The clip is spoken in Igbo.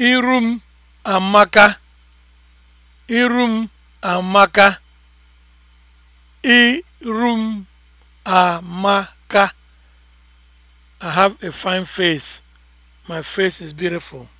iru m amaka iru m amaka iru m amaka i have a fine face my face is beautiful